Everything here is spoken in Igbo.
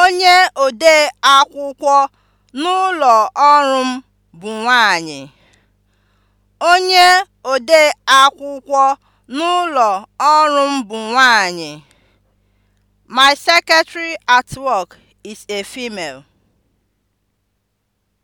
Onye ode akwụkwọ n'ụlọ ọrụ m bụ nwanyị. akwụkwọ n'ụlọ ọrụ m bụ nwanyị. My secretary at work is a female.